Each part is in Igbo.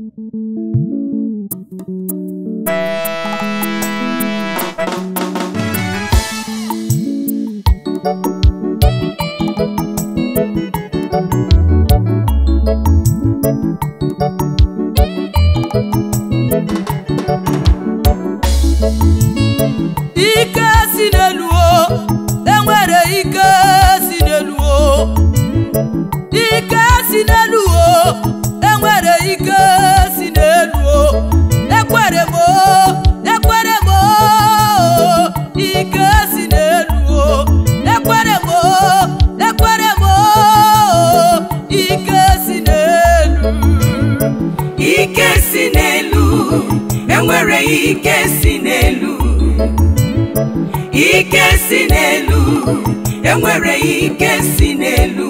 Thank you. ike si n'elu ike si n'elu enwere ike si n'elu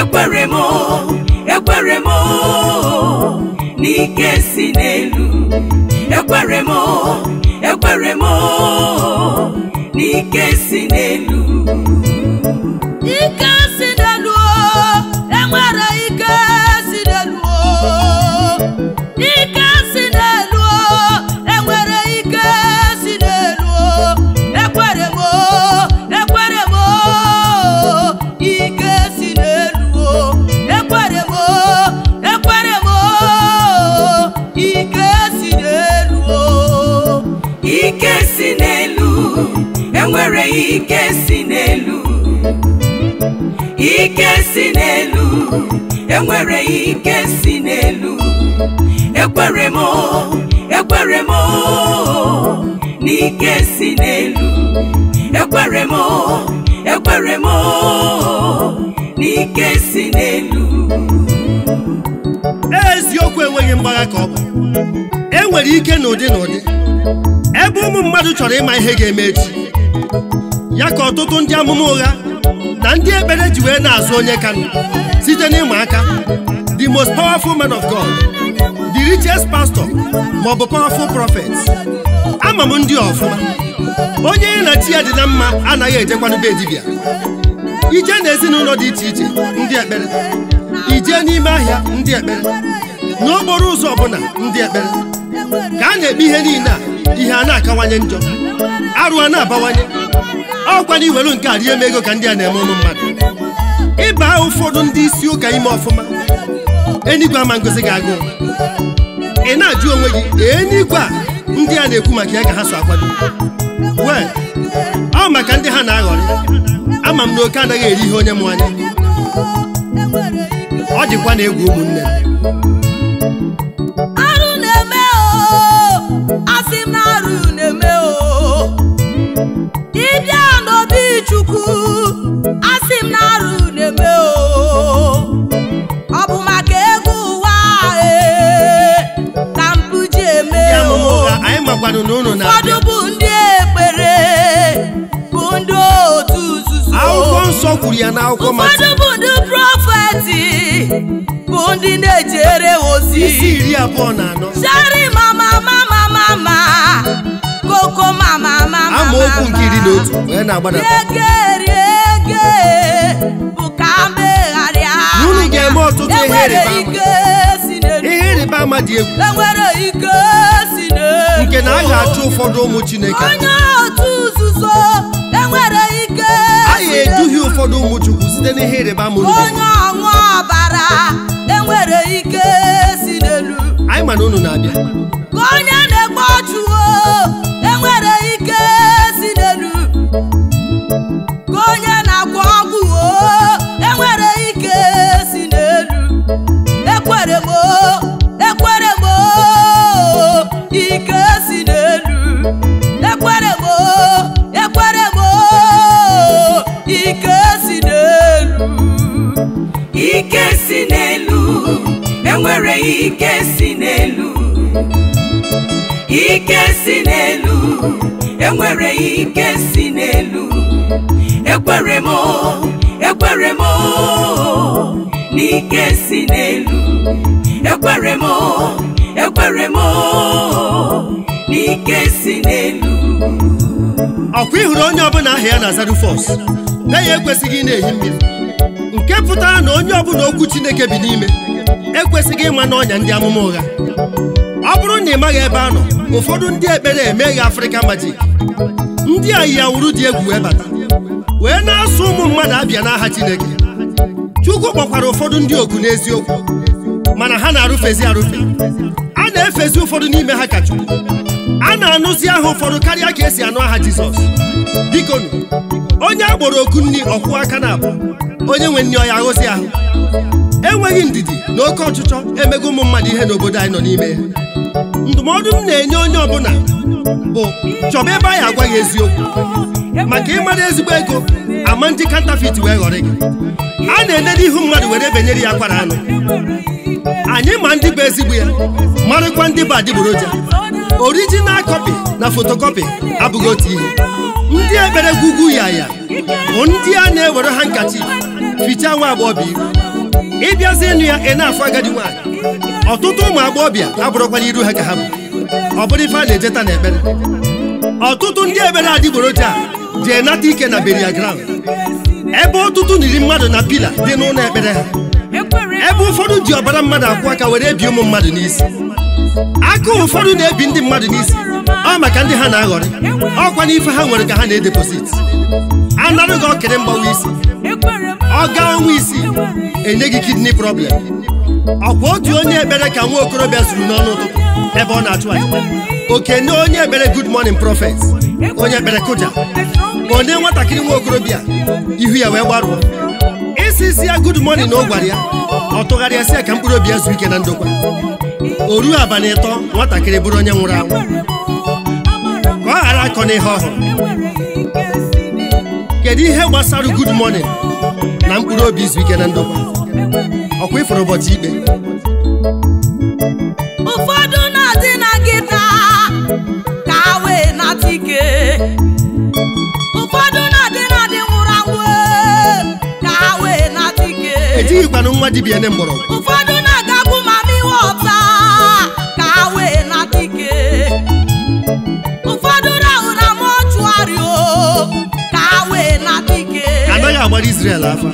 ekwere m ekwere m n'ike si n'elu ekwere m ekwere m n'ike si n'elu ike si n'elu enwere ike nwere ike si n'elu ike si n'elu enwere ike si n'elu ekwere m ekwere m n'ike si n'elu ekwere m ekwere m n'ike si n'elu eziokwu enweghị mgbagha ka ọ bụ enwere ike n'ụdị n'ụdị ebe ụmụ mmadụ chọrọ ịma ihe ga-eme echi ya ka ọtụtụ ndị amụma ụgha na ndị ekpere ji wee na-azụ onye ka site n'ịma aka the most powerful man of God the richest pastor ma ọ bụ powerful prophet ama m ndị ọfụma onye ya na chi ya dị na mma anaghị ejekwanube dibịa ije na n'ezinụlọ dị iche iche ndị ekpere ije n'ime ahịa ndị ekpere n'okporo ụzọ ọbụla ndị ekpere ka a na-ekpe ihe niile a ihe a na-akawanye njọ arụ a na-abawanye ọkwa na iwelu nke a rie m ego ka ndị a na-eme ụmụ mmadụ ịba ụfọdụ ndị isi ụka ime ọfụma enigwe ama ngozi ga-agụ ị na-ajụ onwe gị enigwe a ndị a na-ekwu maka ya ka ha so akwado wee ọ maka ndị ha na-aghọrị ama m na oke anaghị eri ihe onye m anya ọ dịkwa na egwu ụmụnne m nunu na abịa. ụfọdụ bụ ndị ekpere bụ ndị otu nzuzo. akwụkwọ nsọ kwuru ya n'akwụkwọ mata. ụfọdụ bụ ndị prọfeti bụ ndị na-ejere ozi. isi iri abụọ na anọ. shari mama mama mama koko mama mama mama. amaokwu nke iri na wee na-agbadata. ege ege bụ ka mbegharịa. unu ga-eme ọtụtụ ihe rịba ama. ihe rịba ama dị egwu. enwere ike. nke na a ga-achụ ụfọdụ ụmụ Chineke onye otu ga-eduhie ụfọdụ ụmụ Chukwu site n'ihe ịrịba mụrụ onye ọbara enwere ike si n'elu anyị ma na unu na-abịa ike si n'elu ekwere m ekwere m n'ike si n'elu ekwere m ekwere m n'ike si n'elu ọkwa ịhụrụ onye ọbụla aha ya na Zarufos be ya ekwesịghị ị na-ehi mmiri nke pụtara na onye ọbụla okwu Chineke bi n'ime ekwesịghị ịma n'ọnya ndị amụma ụgha ọ bụrụ na ị maghị ebe a nọ ụfọdụ ndị ekpere emeghị afrịka majik. ndị a awuru dị egwu wee bata wee na-asụ ụmụ mmadụ abịa n'aha Chineke Chukwu kpọkwara ụfọdụ ndị ogu n'eziokwu mana ha na-arụfezi arụfe a na-efezi ụfọdụ n'ime ha ka Chukwu a na-anụzi aha ụfọdụ karịa ka esi anụ aha Jizọs bikonu onye agboro oku nri ọkwụ aka na abụ onye nwe nri ọya ahụzi ahụ enweghị ndidi na oke ọchịchọ emego ụmụ mmadụ ihe n'obodo anyị nọ n'ime ya ndụmọdụ m na-enye onye ọbụla bụ chọba ebe anyị agwaghị eziokwu maka ịmara ezigbo ego ama ndị kantafit wee ghọrọ gị a na-enede ihu mmadụ were benyere ya akwara anụ anyị ma ndị bụ ezigbo ya marụkwa ndị bụ adịgboroja orijinal kọpị na fotokọpi abụghị otu ihe ndị ekpere gwugwu ya ya bụ ndị a na-ewere ha nkachi ficha nwa agbọghọbịa iru ịbịazi ịnụ ya ị na-afụ agadi nwaanyị ọtụtụ ụmụ agbọghọbịa abụrụkwala iru ha ka ha bụ ọ bụrụ ife a na-ejeta na ekpere ọtụtụ ndị ebere adịgboroja ji enata ike na beria ground ebe ọtụtụ iri mmadụ na pila dị n'ụlọ ekpere ha ebe ụfọdụ ji ọbara mmadụ akwụ aka were ebi ụmụ mmadụ n'isi aka ụfọdụ na-ebi ndị mmadụ n'isi ọ maka ndị ha na-aghọrị ọkwa n'ife ha nwere ka ha na-edeposit anarụ gị ọkịrị mgbawa isi ọ gaa ọnwa isi enye gị kidney problem ọkwa otu onye ekpere ka nwa okorobịa zuru n'ọnụ ụtụtụ ebe ọ na-atụ anya okene onye ekpere good morning prophet onye ekpere kuja, onye nwatakịrị nwa okorobịa ihu ya wee gbarụọ isi isi ya good na ọ gwara ya ọ tụgharịasị ya ka mkpụrụ obi ya zuo ike na ndokwa o ruo abalị ịtọ nwatakịrị bụrụ onye nwụrụ anwụ ka ọ ghara akọ n'ihe ọhụrụ kedu ihe gbasara good morning na mkpụrụ obi izu ike na ndokwa ọkwa ịfụrụ ụbọchị ikpe ụfọdụ na-adị na nkịta ka ha wee nata ike ụfọdụ na-adị na dị nwụrụ anwụ ka ha wee nata ike etighịkwana nwa dibịa ne mgbọrọgwụ ụfọdụ na-agakwu ma miwe ọta ka ha wee nata ike ụfọdụ rahụ na mọchụarị ka ha wee nata ike anaghị agbara Izrel afa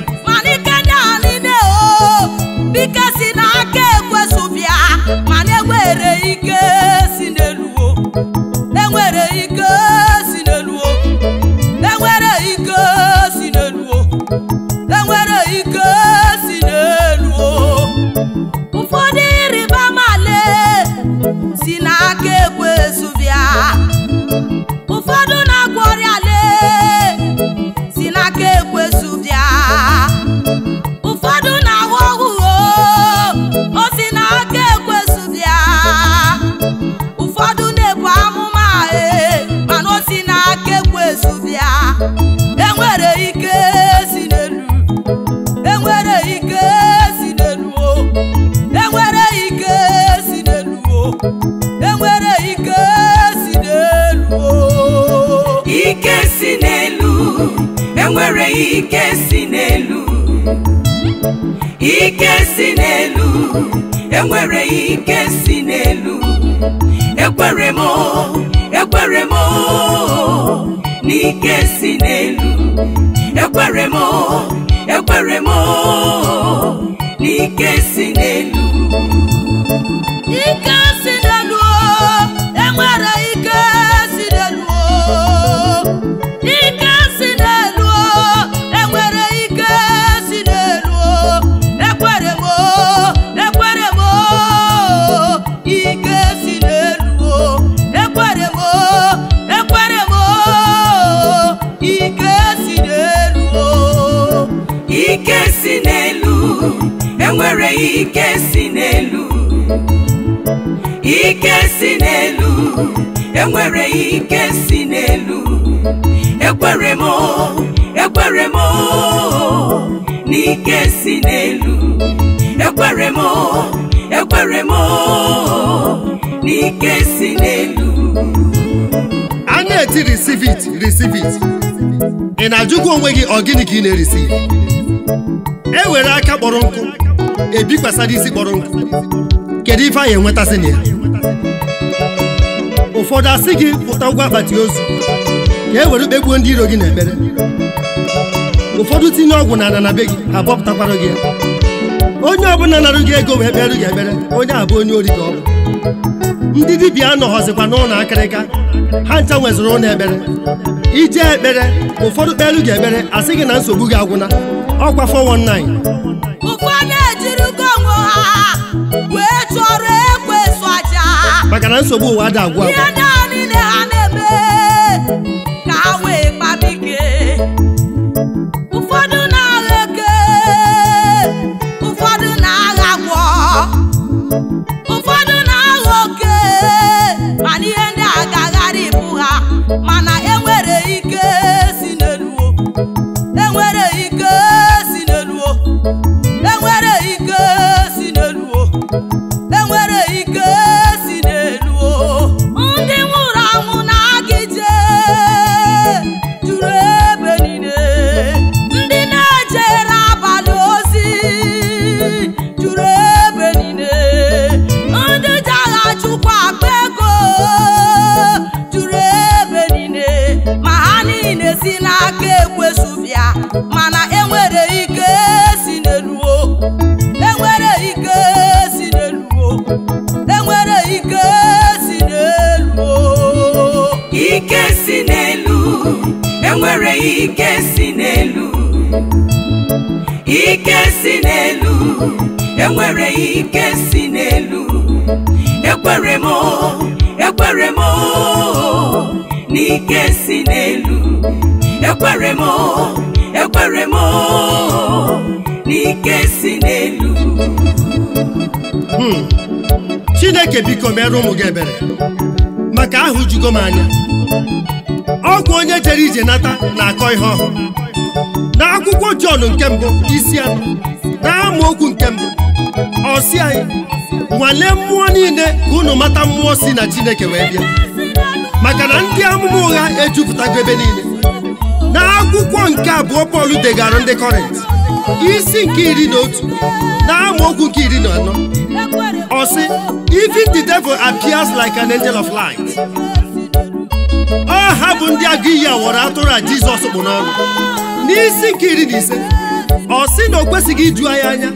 ike si n'elu ike si n'elu enwere ike si n'elu ekwere m ekwere m n'ike si n'elu ekwere m ekwere m n'ike si n'elu ike si n'elu enwere enwere ike si n'elu ike si n'elu enwere ike si n'elu ekwere m ekwere m n'ike si n'elu ekwere m ekwere m n'ike si n'elu a receive it receive it ị na-ajụkwa onwe gị ọ gịnị ka ị na-erisive e were aka kpọrọ nkụ ebikwasara isi kpọrọ nkụ kedu ife anyị enwetasị na ya ụfọdụ asị gị pụta ụgwọ akpati ozu ka e were kpegbuo ndị iro gị na ekpere ụfọdụ tinye ọgwụ na ana na be gị abọpụtakwara gị onye ọbụla narụ gị ego wee kpere gị ekpere onye abụ onye ori ka ọ bụ ndị dibịa anọghọzikwa n'ụlọ akịrịka ha ncha nwezụrụ ụlọ ekpere ije ekpere ụfọdụ kpere gị ekpere asị gị na nsogbu gị agwụna ọkwa 419 ha wee chọrọ ekwe so aja maka na nsogbu ụwa ada agwụ ihe naanị na ha na-eme ka ha wee kpamike ụfọdụ na-agha eke ụfọdụ na-agha gwọ ike si n'elu ike si n'elu enwere ike si n'elu ekwere m ekwere m na ike si n'elu ekwere m ekwere m na ike si n'elu hmm. Chineke biko merụ ụmụ gị ebere maka ahụ jugo m anya ọgwụ onye jere ije nata na-akọ ihe na akwụkwọ Jọn nke mbụ isi anọ na amaokwu nke mbụ ọ anyị nwalee mmụọ niile ka unu mata mmụọ si na Chineke wee bịa maka na ndị amụma ụgha ejupụtago ebe niile na akwụkwọ nke abụọ Pọl degara ndị Kọrint isi nke iri na otu na amaokwu nke iri na anọ ọ sị even the devil appears like an angel of light ọha bụ ndị agiya wọrọ atụrụ a jizọs kpụ n'ọnụ n'isi nke iri na ise ọ sị na o kwesịghị iju anyị anya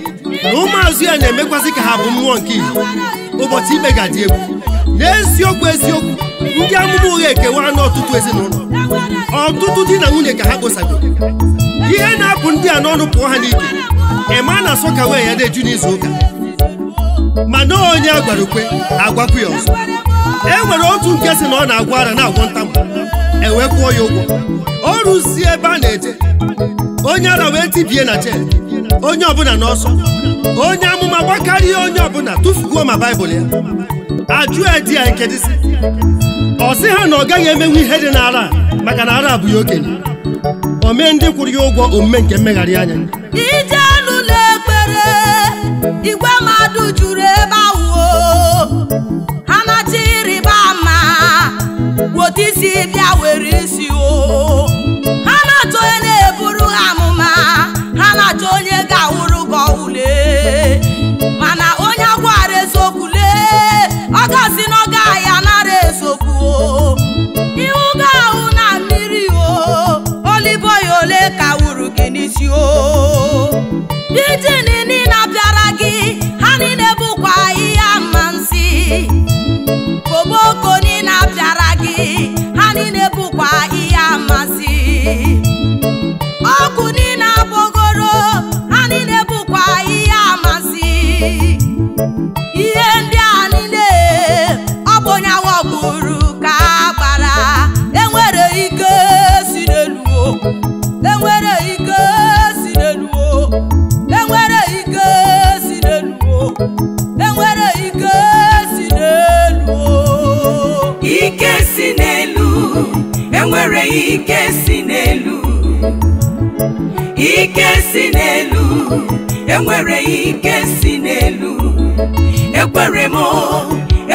na ụmụazụ ya na-emekwasị ka ha bụ mmụọ nke ihe ụbọchị ikpe ga-adị egwu n'eziokwu eziokwu ndị amụma ụgha ekewa anụ ọtụtụ ezinụlọ ọtụtụ di na nwunye ka ha kposago ihe na-apụ ndị a n'ọnụ pụọ ha n'ike ịma na asọ ka wee ya na-eju n'izu ụka na onye agwara ukwe ya ọzọ e nwere otu nke si na ọ na-agwọ ara na-agwọ ntamụ ewee kwụọ ya ụgwọ ọ rụzie ebe a na-eje onye ara wee tibie na je, onye ọbụla n'ọsọ onye amụma gbakarịa onye ọbụla tụfuguo ma baịbụl ya ajụ edi ya nkedisi ọ sị ha na ọ gaghị emenwu ihe dị n'ara maka na ara bụ ya okenye omee ndị kwụrụ ya ụgwọ omume nke mmegharị anya ije anụ na ekpere igwe mmadụ juru ebe ahụ otu isi bịa were isi o ha na-achọ onye na-eburu ha amụma ha na-achọ onye ga-awụrụ gị ọwụle mana onye agwara eziokwu lee ọ ga-asị na ọ gaghị anara eziokwu o iwu ga na mmiri o ya ole ka wuru gị n'isi o ijini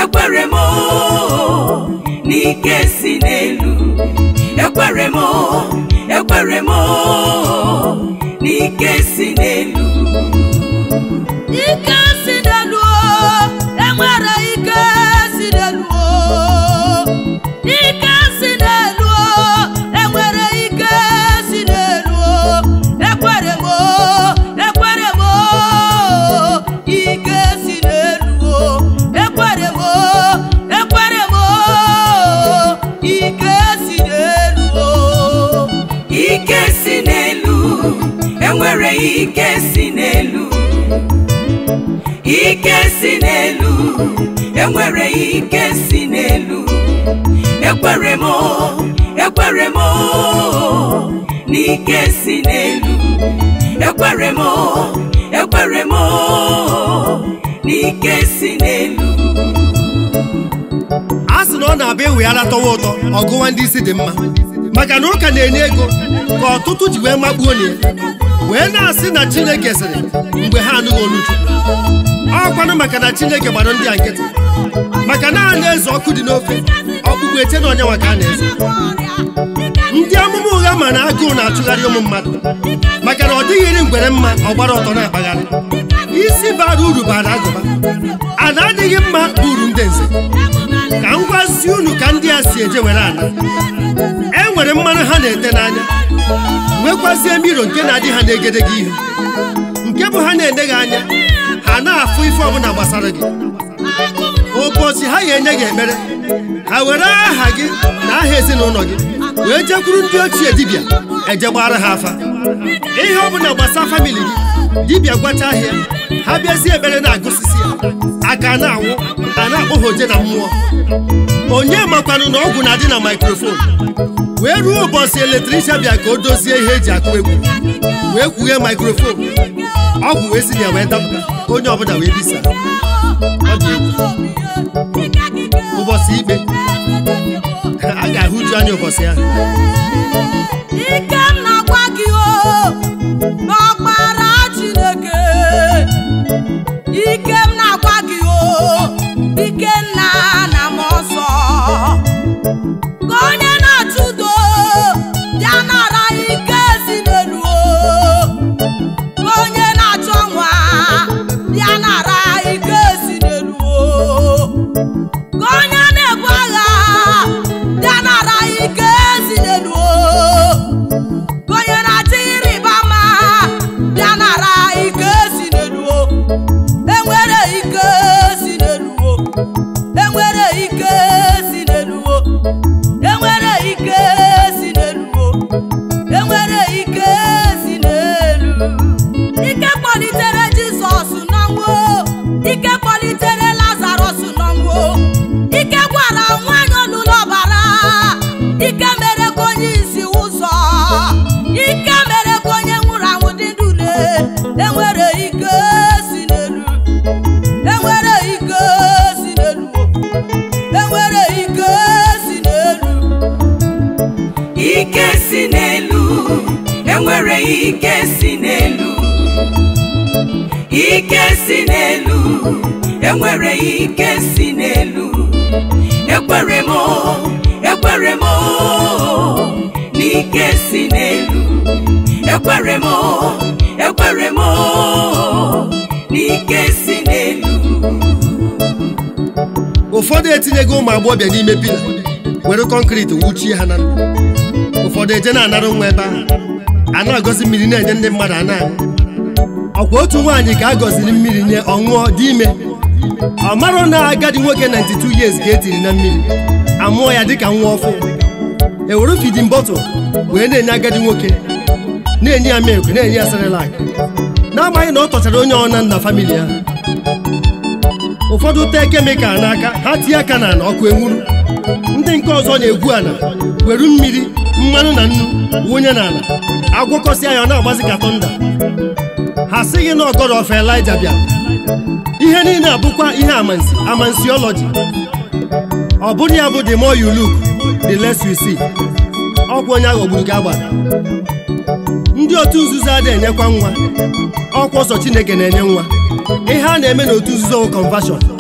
ekwere m n'ike si n'elu ekwere m ekwere m n'ike si n'elu ike si ike si n'elu ike si n'elu enwere ike si n'elu ekwere m ekwere m na ike si n'elu ekwere m ekwere m na ike si n'elu a sị na ọ na-abịa eweghala tọwa ụtọ ọgụwa ndị isi dị mma maka na ụka na-enye ego ka ọtụtụ ji wee makpuo na ya wee na-asị na Chineke sịrị mgbe ha anụghị olu ọkwanụ maka na Chineke gbara ndị a nkịtị maka na eze ọkụ dị n'ofe ọkpụkpụ eche na ọnyanwa ka a na eze ndị amụma ụgha ma na agụụ na atụgharị ụmụ mmadụ maka na ọ dịghịrị ngwere mma ọgbara ọtọ na-akpagharị isi bara uru bara agụba a na-adịghị mma uru ndị nze ka m gwazie unu ka ndị a si eje were ala e nwere mmanụ ha na-ete n'anya nwekwazie miro nke na-adị ha gị ihu nke bụ ha na-eneghị anya ha na-afụ ife ọbụla gbasara gị ụbọchị ha ga-enye gị ekpere ha were aha gị na aha ezinụlọ gị wee jekwuru ndị ochie dibịa ejegbara ha afa ihe ọbụla gbasara famili gị dibịa gwacha ahịa ha bịazie ebere na-agụsisi ya aka na-anwụ a na-akpọhoje na mmụọ onye makwanụ na ọgwụ na-adị na maikrofon wee ruo ụbọchị eletriksha bịa ka o dozie ihe eji akụ egwu wee kwughe maikrofon ọgwụ wee si ya wee dapụta onye ọbụla wee bisa ọ dị ụbọchị ikpe a ga-ahụju anya ụbọchị ahụ ike si n'elu ike si n'elu enwere ike si n'elu ekwere m ekwere m n'ike si n'elu ekwere m ekwere m n'ike si n'elu ụfọdụ etinyego ụmụ agbọbịa n'ime pila were kọnkriti wuchie ha na ndụ ụfọdụ eje na-anara nwa ebe ahụ a na-agọzi mmiri na-enye ndị mmadụ a ọkwa otu nwaanyị ka a gọziri mmiri nye ọṅụọ dị ime ọ marụ na agadi nwoke 92 years ka etiri na mmiri amụọ ya dịka nwa ọfụ ewere fidin bọtụl wee na-enye agadi nwoke na-enye ya milk na-enye ya na-amaghị na ọ tọchara onye ọna nna famili ya ụfọdụ tee kemikal n'aka ha tinye aka na ọkụ enwuru ndị nke ọzọ na-egwu ala weru mmiri mmanụ na nnu wụnye n'ala agwọkọsịa ya ọ na-agbazi ka tọnda ha sịghị na ọgọdọ ọfa bịa ihe niile abụkwa ihe amansi amansiọlọji ọ bụrụ ya bụ the more you look the less you see ọkwa onye ogburu gị agbara ndị otu nzuzo adịghị enyekwa nwa ọkwa ọsọ Chineke na-enye nwa ihe a na-eme n'otu nzuzo wụ conversion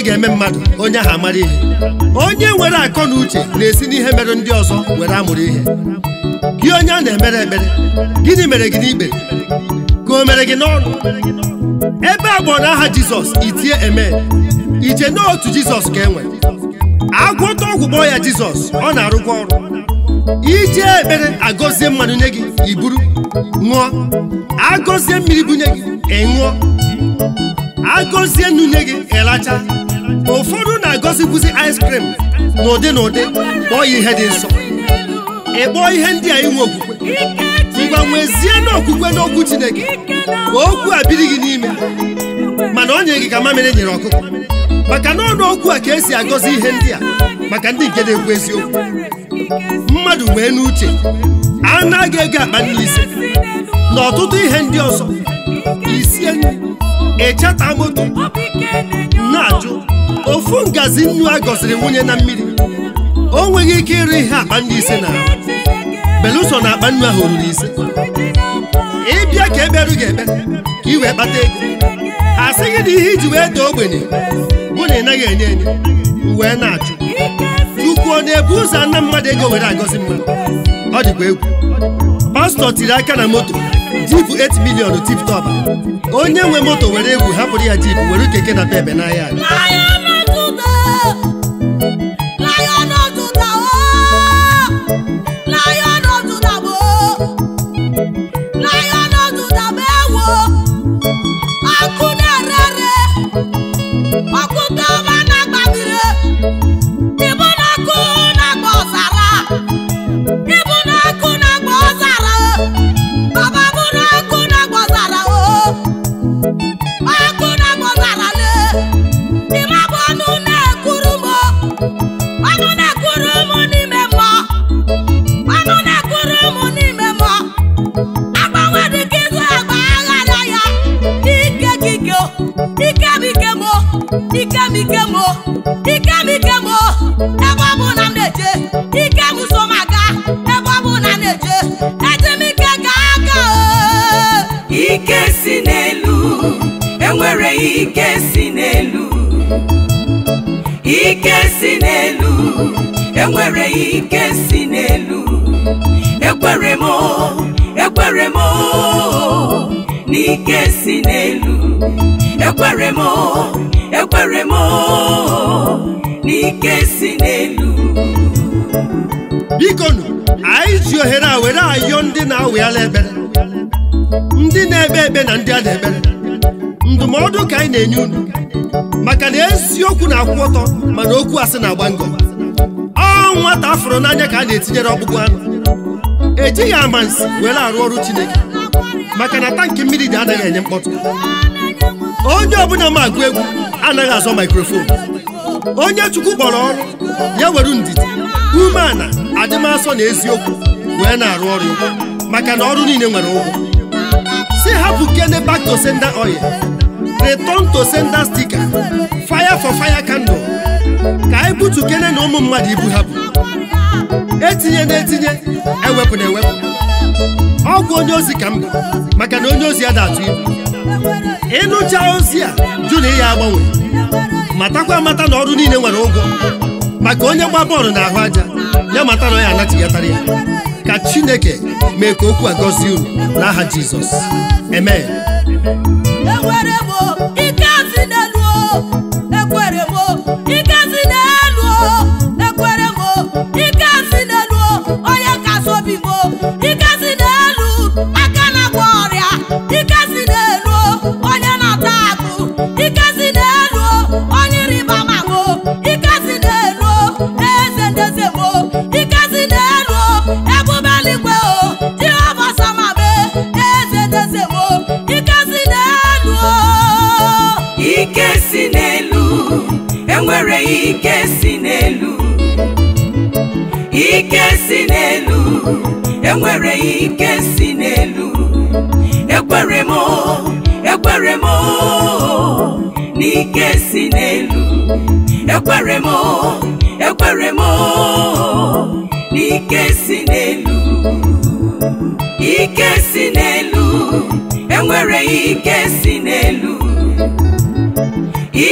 ihe ga-eme mmadụ onye ahụ amara ihe onye nwere akọ na uche na-esi n'ihe mere ndị ọzọ were amụrụ ihe gị onye a na-emere ekpere gịnị mere gị n'ikpe ka o mere gị n'ọnụ ebe a na aha jizọs itie eme iche n'otu jizọs ka enwe agwọta ọgwụ kpọọ ya jizọs ọ na-arụkwa ọrụ ije ekpere agọzie mmanụ nye gị iburu ṅụọ agọzie mmiri bunye gị ịṅụọ agọzie nnu nye gị ịlacha ụfọdụ na-agọzikwuzi ice cream n'ụdị na kpọọ ya ihe dị nsọ ị kpọọ ihe ndị a inwe okwukwe ngwa nwezie n'okwukwe n'okwu Chineke ka okwu a biri gị n'ime mana ọ nyere gị ka mamịrị e nyere ọkụkọ maka na ọnụ okwu a ka esi agọzi ihe ndị a maka ndị nke na-ekwu eziokwu mmadụ wee n'uche anaghị ego akpa n'isi na ọtụtụ ihe ndị ọzọ isie ịchata moto na-ajụ ofu ngazi nnu a gọziri nwunye na mmiri o nweghị ike ịrụ ihe akpa ndị ise na belụsọ na akpa nnu ahụ ruru ise ịbịa ka eberu gị ekpe ka ị wee kpata ego a sịghị na ihe iji wee daa ogbenye bụ na ị naghị enye enye wee na-achụ chukwu ọ na-ebu ụzọ ana mmadụ ego were agọzi mmadụ ọ dịkwa egwu pastọ tiri aka na moto jipụ 8 milion tip onye nwe moto were egwu hapụrụ ya jipụ were keke na bebe n'ahịa enwere ike si n'elu ekwere m ekwere m n'ike si n'elu ekwere m ekwere m n'ike si n'elu bikonu anyị ji ohere a were ayọ ndị na-awịala ebere ndị na-ebe ekpe na ndị a na-ebere ndụmọdụ ka anyị na-enye unu maka na eziokwu na-akwụ ọtọ mana okwu asị na-agba ngọ nwata afụrụ n'anya ka a na-etinyere ọkpụkpụ anụ ejighị amansi were arụ ọrụ Chineke maka na tankị mmiri dị adịghị enye mkpọtụ onye ọbụla ma agụ egwu anaghị azọ maikrofon onye chukwu kpọrọ ọrụ ya were ndidi umeala adịmasọ na eziokwu wee na-arụ ọrụ maka na ọrụ niile nwere ụgwọ si hapụ kene back to sender oil return to sender sticker fire for fire candle ka anyị butukene na ụmụ mmadụ ibu ha bụ etinye na-etinye ewepụ na ewepụ ọgwụ onye ozi ka mba maka na onye ozi a atụ ibu ịnụcha ozi a jụ na ihe agbanwe matakwa amata na ọrụ niile nwere ụgwọ maka onye gba bọọlụ na ahụ aja ya mata na ọ ya anatighatara ya ka chineke mee ka okwu a gọzie uru n'aha jizọs amen e ike si n'elu o onye ka so bigo si n'elu ekwere m ekwere m n'ike si n'elu ike si n'elu enwere ike si n'elu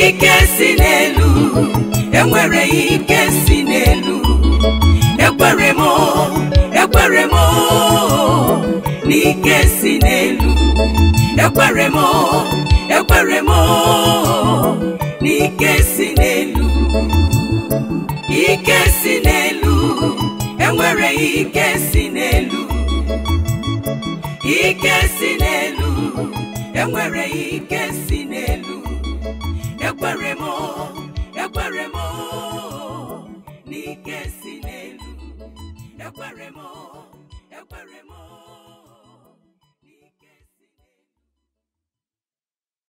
ike si n'elu enwere ike si n'elu ekwere m ekwere m n'ike si n'elu ekwere m ekwere m n'ike si n'elu ike si n'elu enwere ike si n'elu ike si n'elu enwere ike si n'elu ekwere m ekwere m